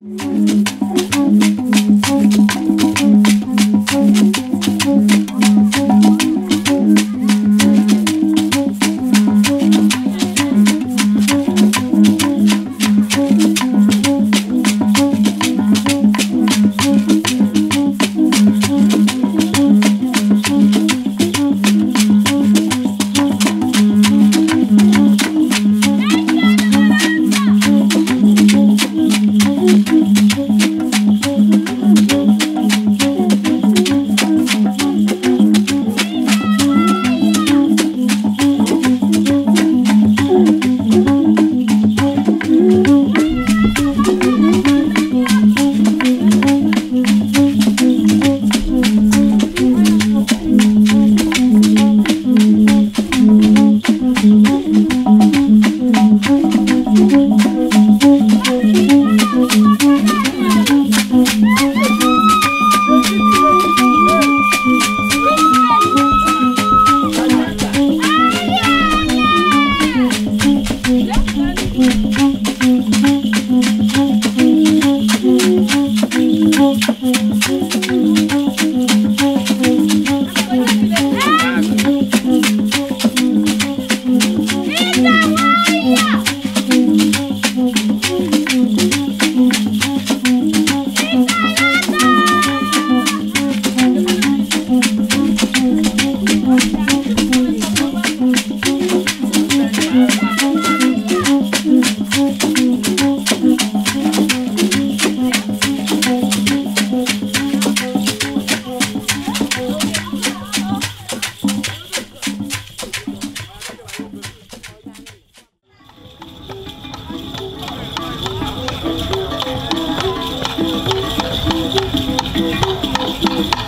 Thank you. Thank you.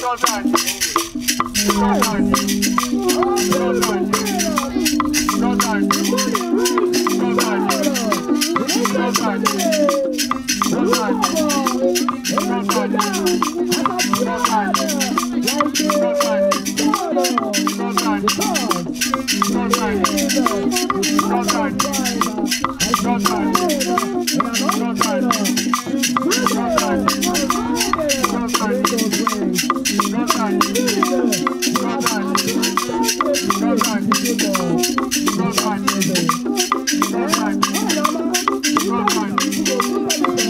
Run, run, run, run, run.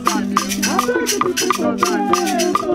Thank you.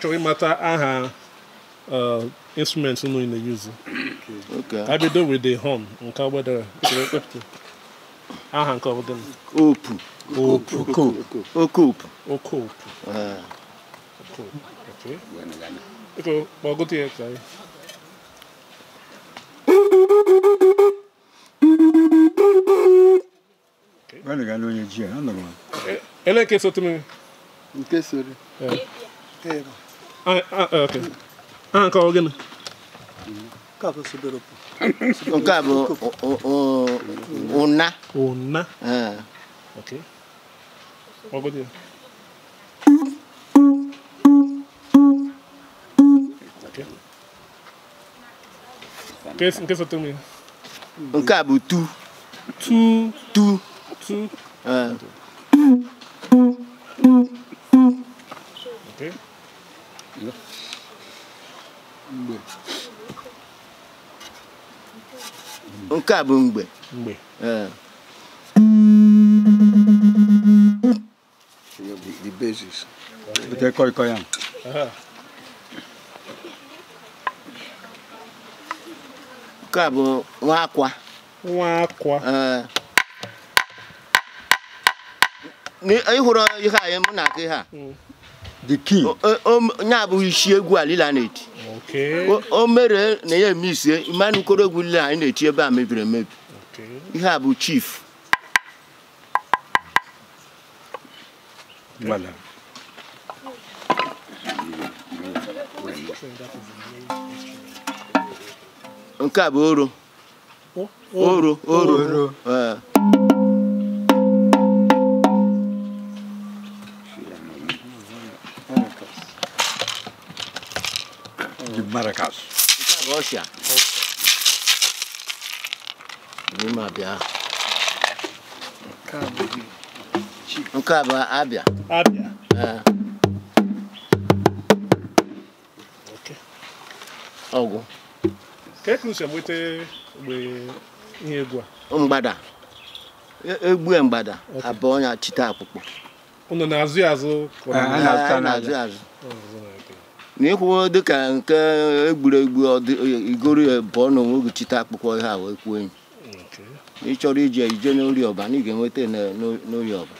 achọghị ịmata aha uh, instruments nụ ị na-eyuzu ka bido with the horn nke gbadara aha nke ọbụla opu opu okoopu okoopu okoopu kpọgụta ya ka ele nke sotu m nke soro Ah, ah, ah, Ou white non. bon, a... S 出 a pe pou li? Ou white 3 Ou white 2 nke a bụ mgbe nke a bụ nwa akwa nwa akwa ịhụrụ ihe anyị mụ na aka ihe a hmm. ya bụ isi egwu alila na-eti o mere na ya eme ise mmanụ ukoro egwu na-eti ebe a mebiri emebi ihe a bụ chief nke a bụ oro oro oro nke a bụ abịa ọgwụ e mgbada e, egbue mgbada abụọ ya chite akpụkpọ n'ikwu dịka nke egburegbu igoro bụọ n'onwe oge chite akpụkpọ ihe a wee kwuo enyi n'ịchọrọ ije ije n'ori na ị ga-enweta n'ori ọba.